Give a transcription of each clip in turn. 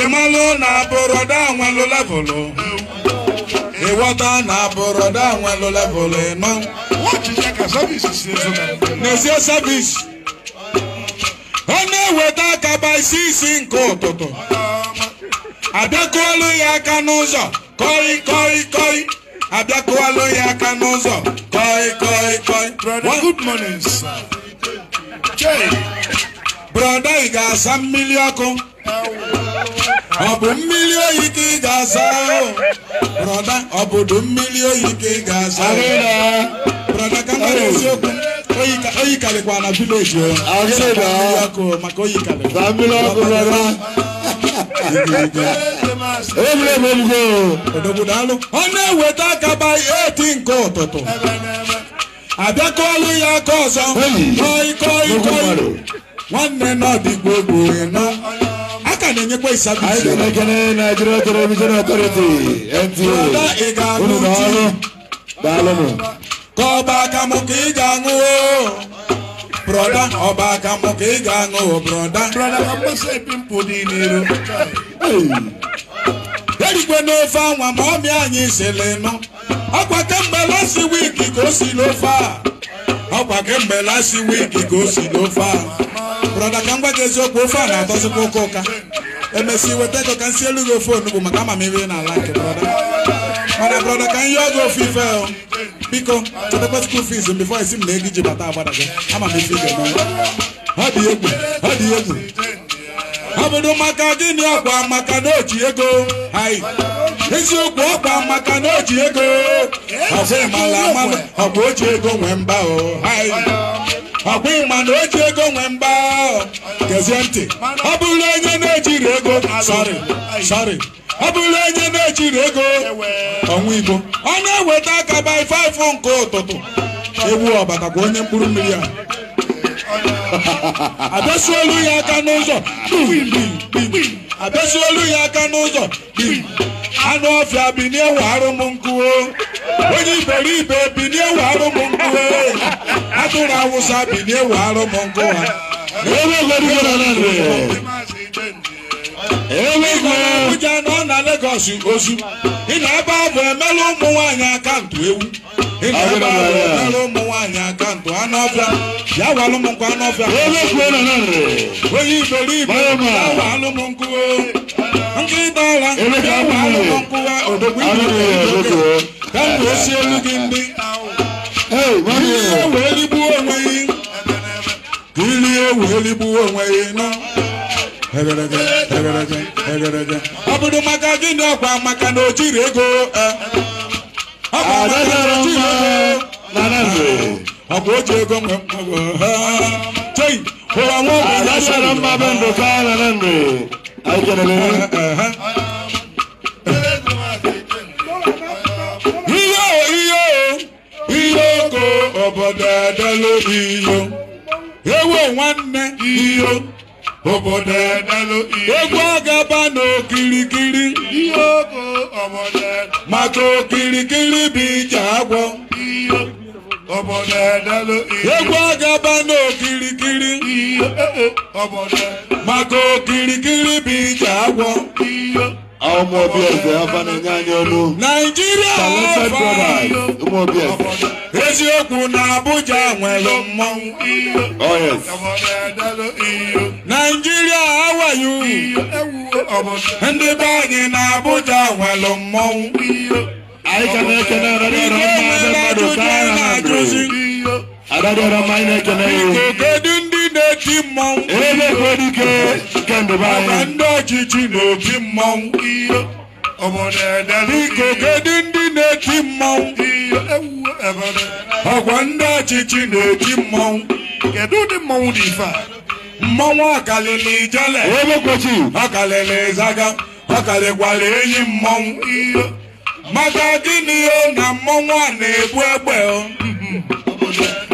ịmalụ na bụrọda nwelụ levụlụ ịghọta na bụrọda nwelụ levụlụ ịnọ n'ezie sevis. ọ na-eweta akaba isi isi nke ụtụtụ abịakụọlụ ya aka n'ụzọ kọị kọị kọị abịakụọlụ ya aka n'ụzọ kọị kọị kọị good morning sir. brọda ị ga-asa mmiri ọkụ ọ bụ mmiri oyi ka ị ga-asa brọda ọbụdụ mmiri oyi ka ị ga-asa brọda ka mara eziokwu oyi karịkwa na vileji ọkụ maka oyi karịkwa ọ na-eweta akaba eti nke ụtụtụ abịakọọlụ ya aka ọzọ koi nwanne n'ọdị gbogbo ịnọ aka na-enyekwa ịsabụ anyị ga-elekere naijiria television authority na ọrụ daalụnụ ka ọba akamụ ka ị ga-aṅụ broda ọba akamụ ka ị ga-aṅụ broda erikwe n'ofe anwa ma ọmị anyị sịrị nụ ọkwa kemgbe lasi wiki ka o si n'ofe a ọkwa kemgbe lasi wiki ka o si n'ofe a brọda ka m gwa gị eziokwu ofe a na-atọzikwa ụka ụka emesịa weta ego ka m elu gị ofe onugbu maka ama m iri na nke brọda mana brọda ka m yọọ gị ofe ife biko chetakwa skuul fiz bifọ esi m na ego iji bata agbada gị ama m ife ị ga-emenwe ha dị egwu ha dị egwu ọ maka gịnị ọkwa maka na oji ego anyị eziokwu ọkwa maka na oji ego ọfụ ịmala amalụ ọkwa oji ego nwee mba o oh. anyị ọbụghị mana o ji ego nwee mgba gezie ntị ọ bụrụ onye na-ejiri ego sorry ọ onye na ego ọ na-eweta aka by 5 nke ụtụtụ iwu ọbata ka onye mkpụrụ mmiri a abịasụolu ya aka n'ụzọ abịasụolu ya aka n'ụzọ anụ ọfịa bi n'ewe arụm nkụo onye ibe iberibe binie warụ m nkụ atụrụ awụsa binie warụ m nkụ ha Abuja nọ na Lagos ozu ị na-ebe abụ emela ụmụ nwaanyị akaụntụ ewu ị na-ebe abụ emela ụmụ nwaanyị akaụntụ anụ ọbịa ya walụ m nkwa anụ ọbịa onye iberibe ya walụ m nkụ nkịta ala nkịta walụ m nkụ odogwu ibe ka m elu gị ndị ihe wee onwe onwe ọ bụrụ ọkwa maka na o jiri ego e. ọkwa o ji e. ego nwe mkpọgo e. chei dalo iyo. Ewo nwanne iyo. Obodo dalo iyo. Egwu agaba n'okirikiri. Iyo ko obodo. Maka okirikiri bụ ije agwọ. Iyo. Obodo dalo iyo. Egwu agaba n'okirikiri. Iyo. Obodo. Maka okirikiri bụ ije agwọ. Iyo àwọn ọmọ ọbí ẹ̀fẹ̀ afanẹ̀yẹ anyọ́nu. nàìjíríà wọ́n fà yọ. ọmọ ọbí ẹ̀fẹ̀. eziokwu na abuja nwere mmanwụ iyo. naijiria awayu. ndị be anyị na abuja nwere mmanwụ iyo. anyị ka na-ekene ọrịa ọrịa mmadụ mmadụ ka a na-ajụzi. adadị ọrịa mmanya n'opi mmọnwụ maka ndị ọchịchị na n'opi mmọnwụ biko kedu ndị na-eti mmọnwụ ọkwa ndị ọchịchị na-eti mmọnwụ kedu ụdị mmọnwụ dị ife a mmọnwụ ọkalịla ijele ọkalịla ịzaga ọkalịkwara enyi mmọnwụ maka gịnị na mmọnwụ a na-egbu egbe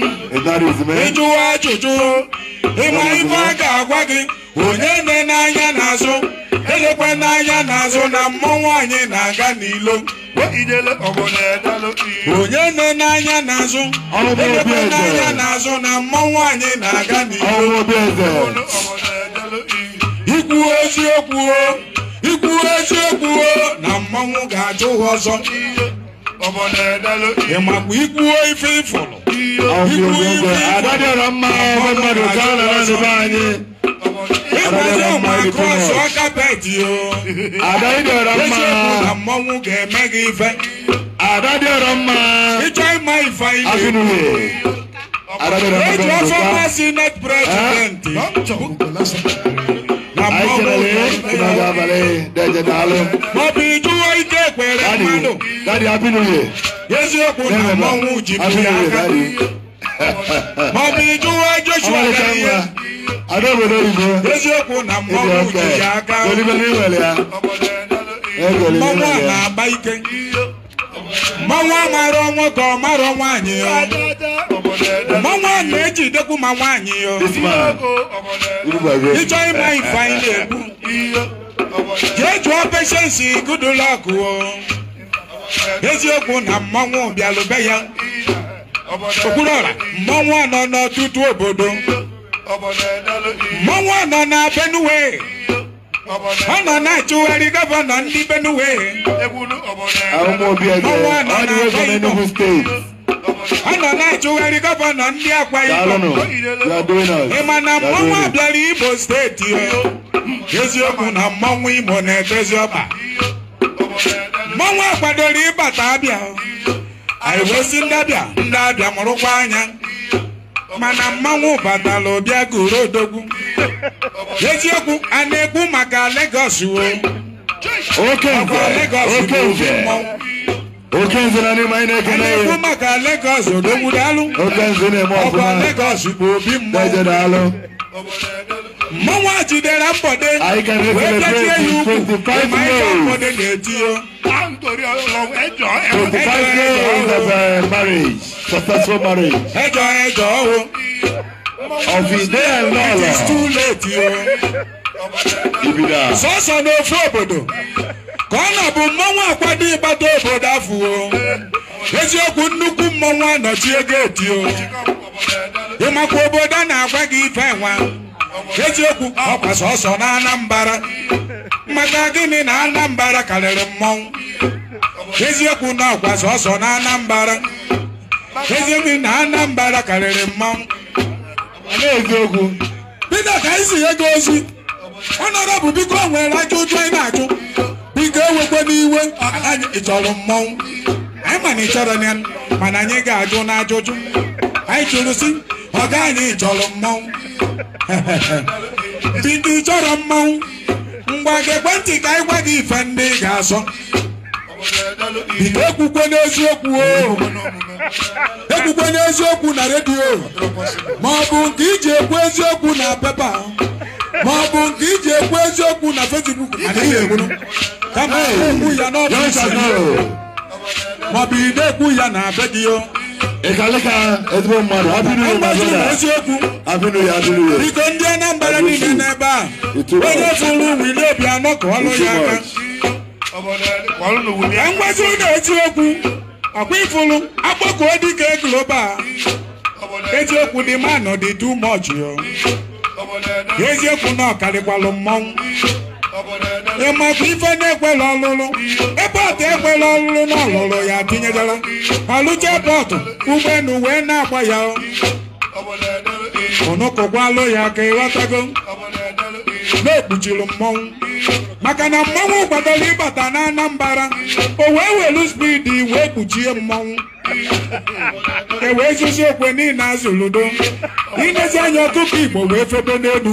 ịjụwa ajụjụ ịma ife a ga-agwa gị onye nne n'anya n'azụ elekwe n'anya n'azụ na mmọnwụ anyị na-aga n'ilo onye nne n'anya n'azụ elekwe n'anya n'azụ na mmọnwụ anyị na-aga n'ilo ikwu eziokwu ikwu eziokwu na mmọnwụ ga-ajụ ọzọ ịmakwa ikwuo ife ịfụrụ ikwuo ife adadịrọ mma ọgbe mmadụ ka ọ nara n'ebe anyị adadịrọ mma ịdịkwa ọsọ kapeti o adadịrọ mma na mmọnwụ ga-eme gị ife adadịrọ mma ịchọ ịma ife anyị na-ekwu eji ọsọ mmasị net prezident na mmọnwụ anyị chere na abalị dị eje n'alụ pẹrẹ mánò. dadi abinuye. yéésù òkú náà mọ ohun jìbìrì àkàrí. mọ̀bìnrin tó wá joshua kẹ́yẹ. adébòde ìbò. yéésù òkú náà mọ ohun jìbìrì àkàrí. olùbẹ̀rẹ̀ ìwẹ̀lẹ̀ ya. mọ̀mú àná àbáyíkẹ́. mọ̀mú àmàrọ̀ wọn kọ̀ márọ̀ wọn àyè mọ wọn méjì dẹ́kun ma wọn àyè yọ. ìjọ ìmọ̀ ìfà ilé ẹ̀kú. jee jụọ peshensi Goodluck eziokwu na mmọnwụ bịalụbe ya Okwuluora mmọnwụ anọ n'ọtụtụ obodo mmọnwụ anọ na Benue ọ nọ na-achụgharị gọvanọ ndị Benue mmọnwụ anọ na Akwa steeti Ọ nọ na-achụgharị gọvanọ ndị Akwa Ibom ị ma na mmọnwụ abịara Ibo steeti ya. eziokwu na mmọnwụ Imo na-edozi ọkpa mmanwụ akwadoro ịbata abịa anyị wee si ndị abịa ndị abịa mụrụkwa anya mana mmanwụ batala ụbịa goro odogwu eziokwu a na-ekwu maka Lagos wo okenze na n'ime anyị na-ekene ya ekwu maka Lagos odogwu daalụ okenze na-eme ọfụma Lagos bụ obi mmụọ mmanwụ a jidere mbọde wee bịajie ya ukwu ịma ihe mbọde na-eti ya ẹjọ ẹjọ o of his day and law sọsọ n'ofu obodo ka ọ na-abụ mmanwụ akwado ịgbata obodo afọ eziokwu nnukwu mmanwụ anọchie geeti o ịmakwa obodo a na-agwa gị ife nwa eziokwu ọkwa sọsọ na Anambra maka gịnị na Anambra karịrị mmọnwụ eziokwu na ọkwa sọsọ na Anambra eziokwu na Anambra karịrị mmọnwụ na-eziokwu Peter ka anyị si ego ozi ọnọdụ bụ biko nwere aka ụjọ anyị na-achụ biko ewekwa n'iwe ị chọrọ mmọnwụ anyị mana ị chọrọ ya mana anyị ga-ajụ n'ajụjụ anyị chọrọ si ọ gaghị ịchọrọ mmanwụ bido chọrọ mmanwụ ngwa gị ekwentị ka anyị gwa gị ife ndị ị ga-asọ bido ekwukwe n'eziokwu o ekwukwe n'eziokwu na redio ma ọ bụ nke iji ekwu eziokwu na pepa ma ọ bụ nke iji ekwu eziokwu na Facebook kama ekwu ya n'ọbụ ma ọ bụ ide ekwu ya na be ịkalị ka ezigbo mmadụ abịnụ ya adịrị ya biko ndị Anambra niile n'ebe a onye fụrụ ụmụ ile obi anọ ka ọlụ ya aka ka mgbazi ụlọ eziokwu, okwu ọkwa ịfụrụ akpọkuo dịka global eziokwu dị manụ dị too much ka eziokwu na ọkarịkwalụ mmọnwụ ị ife na-ekwela ọlụlụ ebọtụ ekwela ọlụlụ na ọlụlụ ya tinyejela pọtụ bọtụ ụgbọelu wee na-agba ya alụ ya ka ịghọtago na-ekpuchiri mmọnwụ maka na mmọnwụ kwadoro ịbata na anambara o wee welu spidi wee kpuchie mmọnwụ e wee zuzi okwe niile azụludo ilezi anya ọkụkọ Igbo wee febe n'elu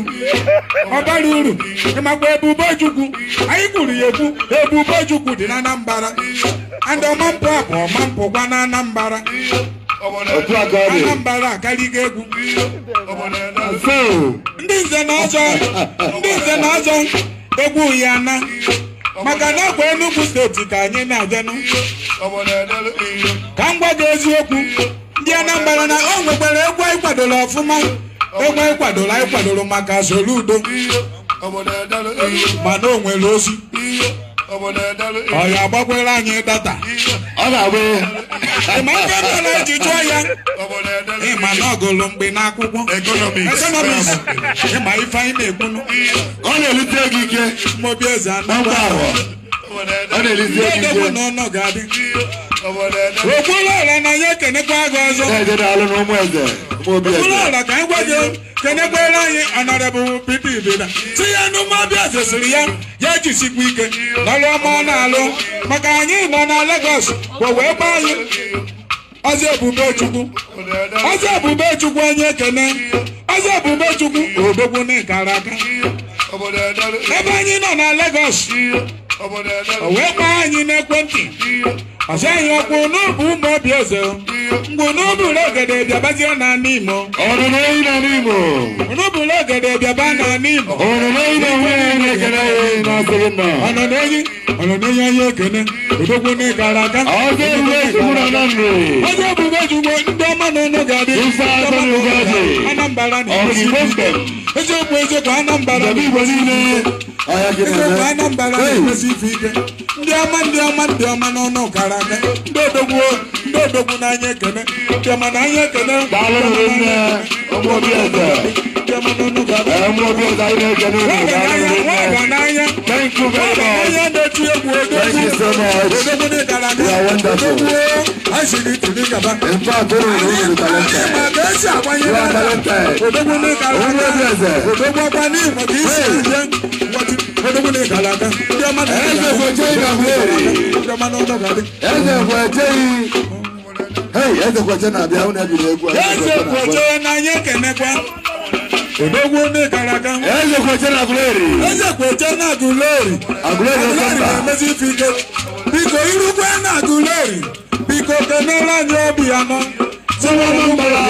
ọ bara uru ịmakwa Ebubechukwu anyị kwuru ya ekwu Ebubechukwu dị na anambara andị ọmampụ abụ mpụ gwa na anambara Anambra akarịgo egwu ndị nze na ọzọ ndị nze na egwu ya na maka na kwa Enugu steeti ka anyị na-abịanụ ka m gwa gị eziokwu ndị Anambra na o nwekwara egwu anyị kwadoro ọfụma egwu anyị kwadoro anyị kwadoro maka Soludo mana o nwere ozi ọ ga-agbakwere anyị data ọ ga-abụ ịma ife mere eji jụọ ya ịma na ọgụlụ mgbe n'akwụkwọ ekonomiks ịma ife anyị na-ekwunu ọ na-elite gị ike mobi eze anagba abụọ ọ na-elite gị ike ọdọgbu na ọnọ ga-adị okporo ọla na ya ekenekwa gị ọzọ okporo ọla ka anyị gwa gị kenekwere anyị ọnọdụ bụ pipi ibeda si ya n'ụmụ ọbịa zesiri ya ya jisikwa ike nalụ ọma ọ na-alụ maka anyị nọ na Lagos wee gba anyị ọzọ ebube chukwu ọzọ chukwu onye ekene ọzọ ebube chukwu obogbu n'ịkara aka ebe anyị nọ na Lagos wee gbaa anyị n'ekwentị ọzọ anyị ọkwụ n'obu ụmụ obi eze mgbe onobula ogede bịabazie na imo onobula ogede bịaba na ana imo ọnọdụoyi ọnọdụoyi onye na gara aga ebube jugbo ndị ọma na ọnụ ga-adị Anambra na eziokwu Anambra na Igbo eekwa anya mbara na-emesi ife ike ndị ọma ndị ọma ndị ọma n'ọnụ ọkara aka ndị odogwu ndị odogwu n'anya ekene ndị ọma na ekene nwaga n'anya n'anya na so much. You are wonderful. In fact, don't even know you are talented. You are talented. Only blessed. Eze kweje na Eze kweje. Hey, eze kweje na abịa unu ebiri egwu. Eze kweje na ekenekwa. Odogun ni Karagam. Eze Kwechena Aguleri. Eze Kwechena Aguleri. Aguleri Okanda. Aguleri Fike. Biko Irukwe na Aguleri. Biko Kenela Nyobi Amon sọ́wọ́ ló ń bala.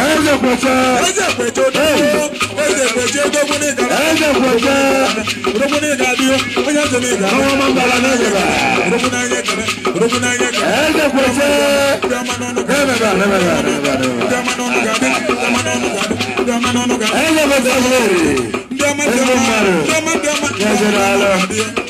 ẹ̀ẹ́dẹ̀ pẹ̀tẹ́. ẹ̀ẹ́dẹ̀ pẹ̀tẹ́ dọ́gbọ́. ẹ̀ẹ́dẹ̀ pẹ̀tẹ́ dọ́gbọ́ ní ìgbà. ẹ̀ẹ́dẹ̀ pẹ̀tẹ́. dọ́gbọ́ ní ìgbà bí ó ó yà tẹ̀lé ìgbà. sọ́wọ́ máa ń bala náà yẹ̀rọ. dọ́gbọ́ náà yẹ kẹ̀mẹ́. dọ́gbọ́ náà yẹ kẹ̀mẹ́. ẹ̀ẹ́dẹ̀ pẹ̀tẹ́. ẹ̀ẹ́dẹ̀ pẹ̀tẹ́. ẹ̀ẹ́dẹ̀ pẹ̀tẹ́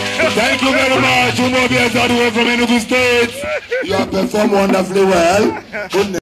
Thank you very much. Umobi Azadu from any of the states. You have performed wonderfully well. Goodness.